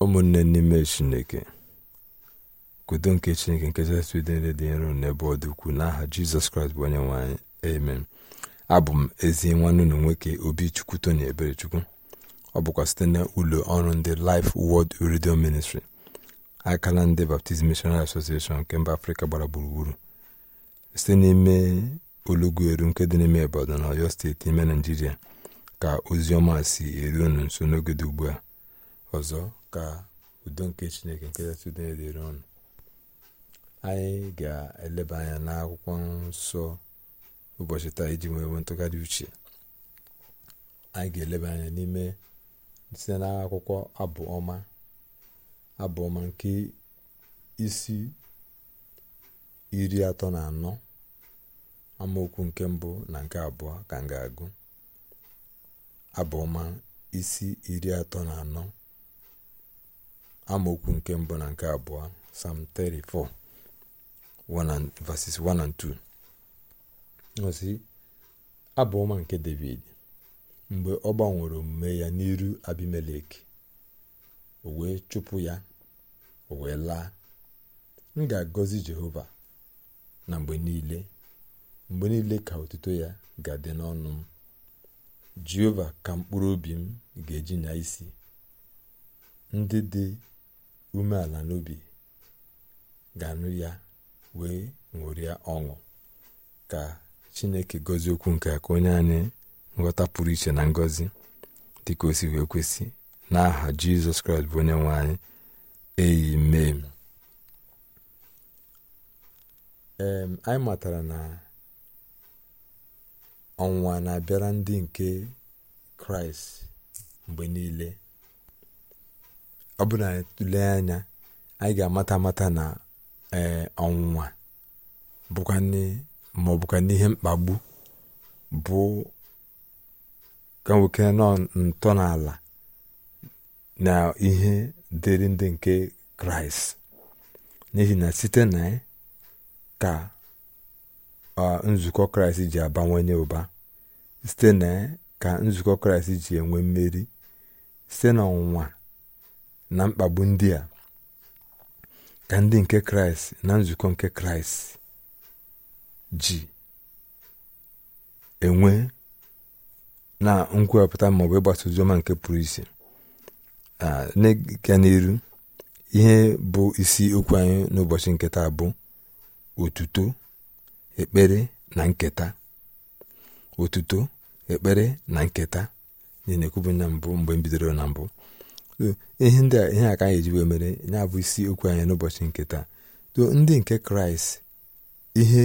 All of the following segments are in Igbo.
ụmụnne n'ime chineke kudo nke chineke nke kachasị udo niile dị nro n'ebe ọ dị ukwuu n'aha jizọs kraịst bụ onye nwe anyị amen abụ m ezi nwanne ụlọ nwoke obi ebere eberechukwu ọ bụkwa site na ụlọ ọrụ ndị Life wod Radio Ministry akala ndị Baptist Missionary Association nke mba Afrịka gbara gburugburu site n'ime olugweru nke dị n'ime Ibadan na Ọyọ steeti ime Naijiria ka ozi ọma si eru unu nso n'oge dị ugbu a ọzọ ka udo nke chineke nke kachasị udo niile anyị ga-eleba anya n'akwụkwọ nsọ ụbọchị taa iji nwee ntụgharị uche anyị ga-eleba anya n'ime site n'akwụkwọ abụọma ọma nke isi iri atọ na anọ amaokwu nke mbụ na nke abụọ ka m ga-agụ abụ isi iri atọ na anọ amaokwu nke mbụ na nke abụọ Psalm 34 verses 1 and 2 ọsị nke David mgbe ọ gbanwere omume ya n'iru Abimelek o wee chụpụ ya o wee laa m ga-agọzi Jehova na mgbe niile mgbe niile ka otuto ya ga-adị n'ọnụ m Jehova ka mkpụrụ obi m ga-eji nya isi ndị dị umeala n'obi ga-anụ ya wee ṅụrịa ọṅụ ka chineke gọzie okwu nke ka onye anyị nghọta pụrụ iche na ngọzi dịka o si wee kwesị n'aha jizọs kraịst bụ onye nwe anyị eyi mee ee anyị matara na ọnwụnwa na-abịara ndị nke kraịst mgbe niile ọ bụrụ na anyị anya anyị ga-amata amata na ee ọnwụnwa ma ọ ihe n'ihe mkpagbu bụ ka nwoke nọ ntọala na ihe dịrị ndị nke kraịst n'ihi na site na ka nzukọ kraịst ji abawanye ụba site na ka nzukọ kraịst ji enwe mmeri site na ọnwụnwa na mkpagbu ndị a ka ndị nke kraịst na nzukọ nke kraịst ji enwe na nkwupụta maọbụ ịgbasa oziọma nke pụrụ isi na na n'iru ihe bụ isi okwu anyị n'ụbọchị nketa bụ otuto ekpere na nketa otuto ekpere na nketa na na mbụ mgbe m bidoro na mbụ ihe ndị a ihe aka anyị ejiwe mere ya bụ isi okwu anyị n'ụbọchị nke taa to ndị nke kraịst ihe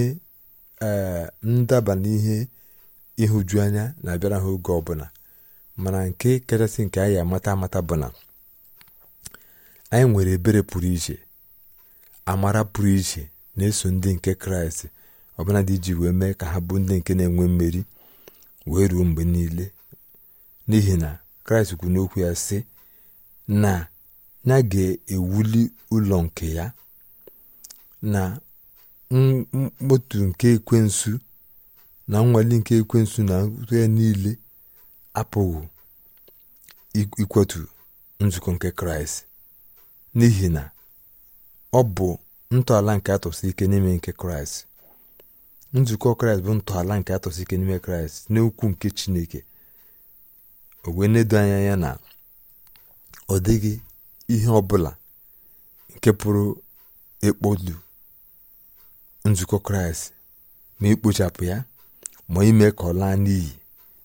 e, ndaba n'ihe ịhụju anya na-abịara ha oge ọbụla mana nke kachasị nke anyị amata amata bụ na anyị nwere ebere pụrụ iche amara pụrụ iche na-eso ndị nke kraịst ọbụla dị iji wee mee ka ha bụ ndị nke na-enwe mmeri wee ruo mgbe niile n'ihi na kraịst kwu n'okwu ya sị na ya ga-ewuli ụlọ nke ya na mkpọtụ nke ekwensu na nnwale nke ekwensu na ya niile apụghị ikwetu nzukọ nke kraịst n'ihi na ọ bụ ntọala nke atọsị ike n'ime nke kraịst nzukọ kraịst bụ ntọala nke atọsi ike n'ime kraịst n'okwu nke chineke o wee edo anya ya na ọ dịghị ihe ọbụla nke pụrụ ịkpọdu nzukọ kraịst ma ikpochapụ ya ma ime ka ọ laa n'iyi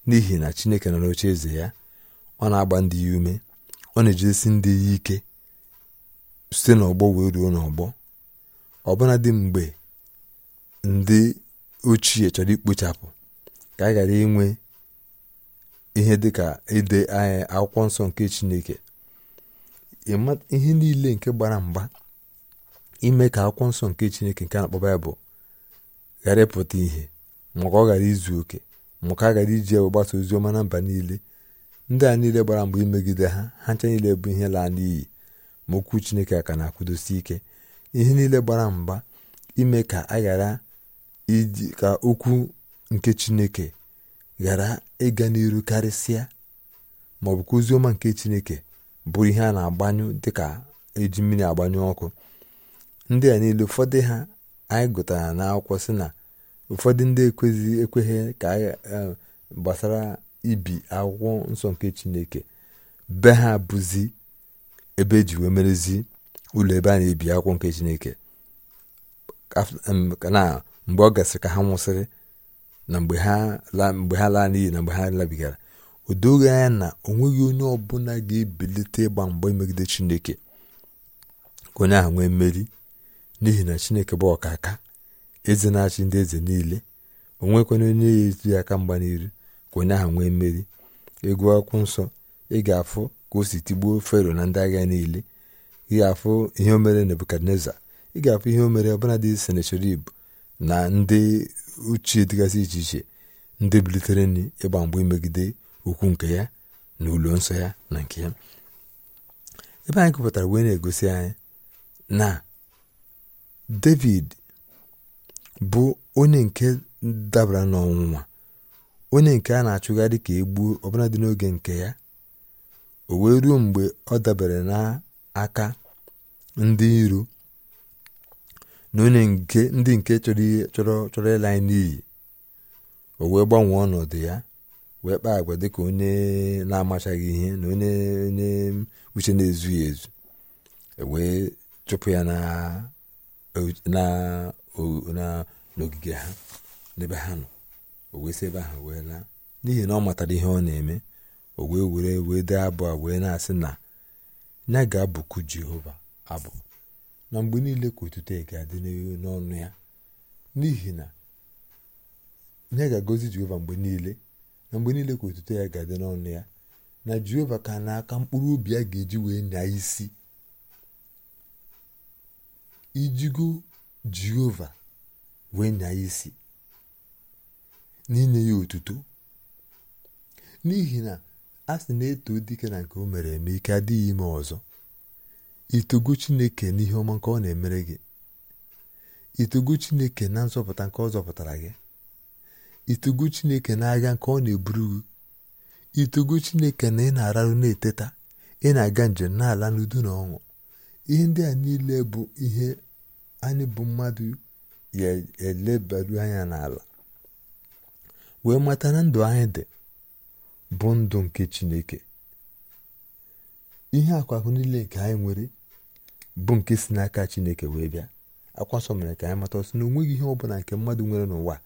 n'ihi na chineke nọ n'oche eze ya ọ na-agba ndị ya ume ọ na-ejidesi ndị ya ike site n'ọgbọ wee ruo n'ọgbọ ọbụna dị mgbe ndị ochie chọrọ ikpochapụ ka a ghara inwe ihe ka ide akwụkwọ nsọ nke chineke ihe niile nke gbara mgba ime ka akwụkwọ nsọ nke chineke nke na-akpọ baịbụl ghara ịpụta ihe maka ọ ghara izu oke maka a gara iji egbe gbasa ozi ọma na mba niile ndị a niile gbara mgba imegide ha ha ncha niile bụ ihe laa n'iyi ma okwu chineke a ka na-akwụdosi ike ihe niile gbara mgba ime ka a ghara iji ka okwu nke chineke ghara ịga n'iru karịsịa maọbụ ka oziọma nke chineke bụ ihe a na-agbanyụ dịka eji mmiri agbanyụ ọkụ ndị a niile ụfọdụ ha anyị gụtara n'akwụkwọ sị na ụfọdụ ndị ekweghị ekweghị ka e, gbasara ibi akwụkwọ nsọ nke chineke be ha bụzi ebe eji wee merezi ụlọ ebe a na-ebi akwụkwọ nke chineke na mgbe ọ gasịrị ka ha nwụsịrị na mgbe ha laa n'iyi na mgbe ha labigara o doghị anya na o nweghị onye ọbụla ga-ebilite ịgba mgba megide chineke ka onye ahụ nwee mmeri n'ihi na chineke bụ ọkaka eze na-achị ndị eze niile o nwekwana onye ya eti aka mgba n'iru ka onye ahụ nwee mmeri egwu akwụkwọ nsọ ị ga-afụ ka o si tigbuo fero na ndị agha niile ị ga-afụ ihe o mere nebukadneza ị ga-afụ ihe o mere ọbụladị senecherib na ndị ochie dịgasị iche iche ndị bilitere nri ịgba mgbe imegide ukwu nke ya na ụlọ nsọ ya na nke ya ebe anyị kụpụtara wee na-egosi anyị na david bụ onye nke dabara n'ọnwụnwa onye nke a na-achụgharị ka egbuo ọbụla dị n'oge nke ya o wee ruo mgbe ọ dabere n'aka ndị iro na onye nke ndị nke chọrọ chọrọ ịla anyị n'iyi o wee gbanwee ọnọdụ ya wee kpaa agwa dịka onye na-amachaghị ihe na onye onye uche na-ezughị ezu e wee chụpụ ya n'ogige ha n'ebe ha nọ o wee si ebe ahụ wee laa n'ihi na ọ matara ihe ọ na-eme o wee were wee dee abụ a wee na-asị na ya ga-abụku jehova abụ na mgbe niile ka otuto ga-adị n'ọnụ ya n'ihi na ya ga-agọzi jehova mgbe niile na mgbe niile ka otuto ya ga-adị n'ọnụ ya na jehova ka n'aka mkpụrụ obi ya ga-eji wee na isi ijigo jehova wee nya isi n'inye ya otuto n'ihi na a sị na-eto dike na nke o mere eme ike adịghị ime ọzọ itogo chineke n'ihe ọma nke ọ na-emere gị itogo chineke na nzọpụta nke ọ zọpụtara gị itogo chineke n'agha nke ọ na-eburu itogo chineke na ị na-ararụ na-eteta ị na-aga njem n'ala n'udo na ọṅụ ihe ndị a niile bụ ihe anyị bụ mmadụ ya elebaru anya n'ala wee mata na ndụ anyị dị bụ ndụ nke chineke ihe akwakụ niile nke anyị nwere bụ nke si n'aka chineke wee bịa akwasọ mere ka anyị mata ọsọ na onweghị ihe ọ bụla nke mmadụ nwere n'ụwa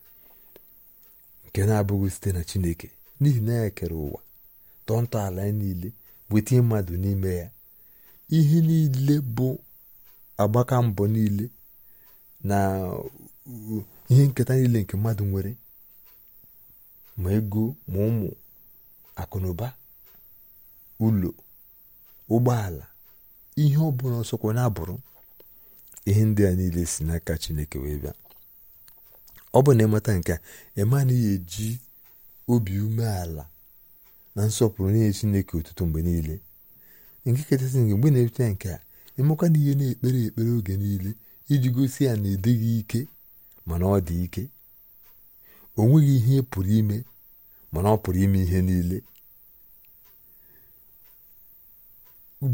nke na-abụghị site na chineke n'ihi na ya kere ụwa tọọ ntọala ya niile wetinye mmadụ n'ime ya ihe niile bụ agbaka mbọ niile na ihe nketa niile nke mmadụ nwere ma ego ma ụmụ akụnụba ụlọ ụgbọala ihe ọ bụla ọsọkwa na-abụrụ ihe ndị a niile si n'aka chineke wee bịa ọ bụ na ịmata nke a ịma na ya eji obi umeala na nsọpụrụ nye chineke ụtụtụ mgbe niile nke kachasị nke mgbe na-eche nke a ịmakwa na ihe na-ekpere ekpere oge niile iji gosi ya na edịghị ike mana ọ dị ike o nweghị ihe pụrụ ime mana ọ pụrụ ime ihe niile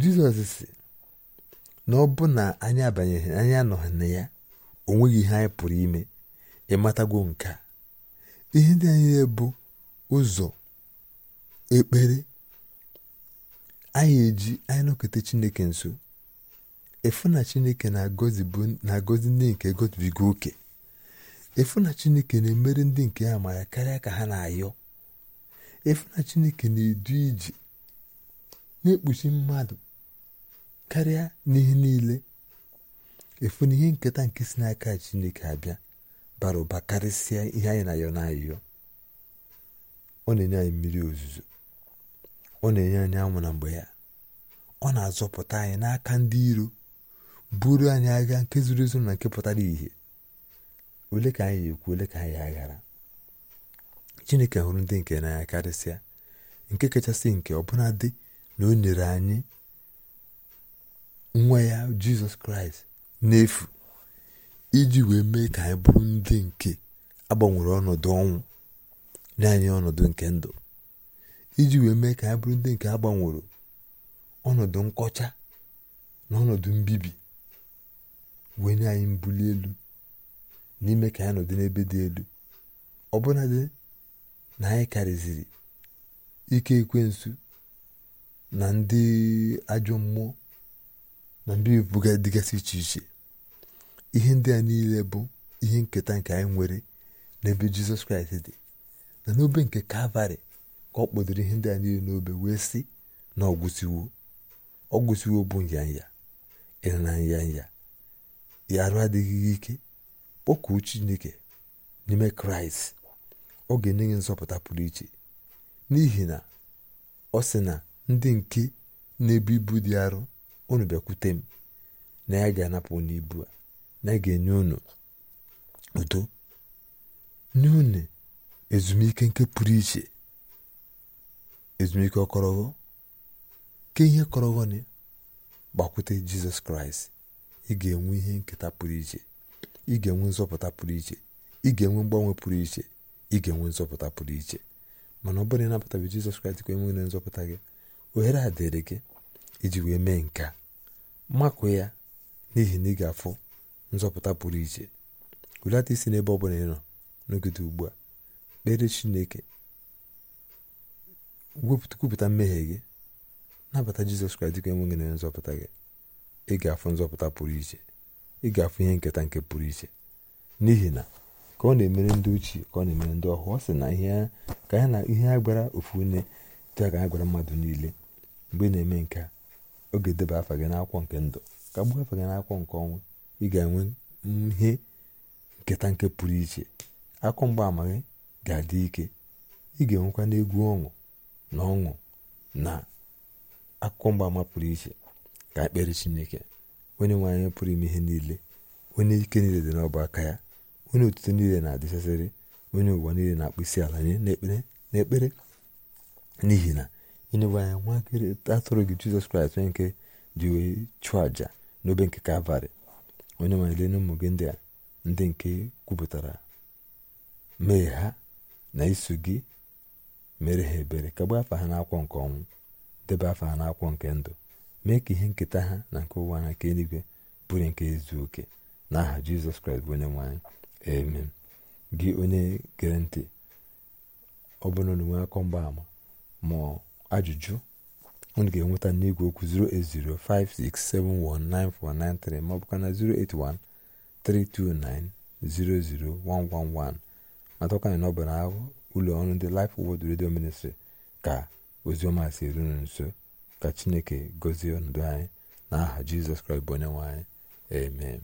jizọs si na ọ bụ na anyị abanyeghị anyị anọghị na ya o nweghị ihe anyị pụrụ ime Ịmatagwo nke a ihe ndị anyị bụ ụzọ ekpere anyị eji anyị nọkọta chineke nso efu na chineke na-agọzi ndị nke gozibiga oke efu na chineke na-emere ndị nke ya karịa ka ha na-ayọ efu na chineke na-edu iji na-ekpuchi mmadụ karịa n'ihe niile efu na ihe nketa nke si n'aka chineke abịa bara ụba karịsịa ihe anyị na-ayọ na ọ na-enye anyị mmiri ozuzo ọ na-enye anyị anwụ na mgbe ya ọ na-azọpụta anyị n'aka ndị iro buru anyị agha nke zuru ezu na nke pụtara ìhè ole ka anyị ekwu ole ka anyị aghara chineke hụrụ ndị nke n'anya karịsịa nke kachasị nke ọbụla na o nyere anyị nwa ya jizọs kraịst n'efu iji wee mee ka anyị bụrụ ndị nke agbanwere ọnọdụ ọnwụ nye anyị ọnọdụ nke ndụ iji wee mee ka anyị bụrụ ndị nke agbanwere ọnọdụ nkọcha na ọnọdụ mbibi wee nye anyị mbuli elu n'ime ka anyị nọdụ n'ebe dị elu ọbụnadị na anyị karịziri ike ekwensu na ndị ajọ mmụọ na mbibi bụga dịgasị iche iche ihe ndị a niile bụ ihe nketa nke anyị nwere n'ebe jizọs kraịst dị na n'obe nke kalvarị ka ọ kpọdoro ihe ndị a niile n'obe wee sị na ọgwụsiwo ọgwụsiwo bụ nyanya ịna nyanya ya arụ adịghị ike kpọkuo chineke n'ime kraịst ọ ga-enye gị nzọpụta pụrụ iche n'ihi na ọ sị na ndị nke na-ebu ibu dị arọ unu bịakwute m na ya ga-anapụ n'ibu a na ga-enye unu udo nye unu ezumike nke pụrụ iche ezumike ọkọrọghọ ke ihe nị gbakwute jizọs kraịst ị ga-enwe ihe nketa pụrụ iche ị ga-enwe nzọpụta pụrụ iche ị ga-enwe mgbanwe pụrụ iche ị ga-enwe nzọpụta pụrụ iche mana ọ bụrụ na bụ jizọs kraịst ka enwere nzọpụta gị ohere a dịrị gị iji wee mee nke makụ ya n'ihi na ị ga-afụ nzọpụta pụrụ iche hulata isi n'ebe ọ bụla ịnọ nọ n'ogide ugbu a kpere chineke kwupụta mmehie gị nabata jizọs kraịst dịka enweghị na nzọpụta gị ị ga-afụ nzọpụta pụrụ iche ị ga-afụ ihe nketa nke pụrụ iche n'ihi na ka ọ na-emere ndị ochie ka ọ na-emere ndị ọhụụ ọ sị na ihe ka ya na ihe a gwara ofu nne dị ka ha gwara mmadụ niile mgbe ị na-eme nke a oge deba afa gị n'akwụkwọ nke ndụ ka gbuo afa gị n'akwụkwọ nke ọnwụ ị ga-enwe ihe nketa nke pụrụ iche akụ mgbaama gị ga-adị ike ị ga-enwekwa n'egwu ọṅụ na ọṅụ na akụkọ mgbaama pụrụ iche ka ekpere chineke onye nwe anyị pụrụ ime ihe niile onye ike niile dị n'ọba aka ya onye otuto niile na-adịchasịrị onye ụwa niile na-akpụ isi ala nye n'ekpere n'ihi na ịnyewe anya nwa atụrụ gị jizọs kraịst onye nke ji wee chụọ àjà n'obe nke kalvarị onye nwanyele ụmụ gị ndị a ndị nke kwupụtara mee ha na iso gị mere ha ebere ka gbaa afa ha n'akwọ nke ọnwụ debe afa ha n'akwọ nke ndụ mee ka ihe nketa ha na nke ụwa na nke eluigwe bụrụ nke izu oke n'aha aha jizọs kraịst bụ onye nwanyị amen gị onye gere ntị ọ bụrụ na onwe akọ mgbaama ma ajụjụ unu ga-enweta n'igwe okwu 08056719493 ma ọ bụkwa na 08132900111 matakwana na ọ bụ na ụlọ ọrụ ndị Life Word Radio Ministry ka ozioma si erunu nso ka chineke gozie ọnọdụ anyị na aha jizọs kraịst bụ onye nwe anyị amen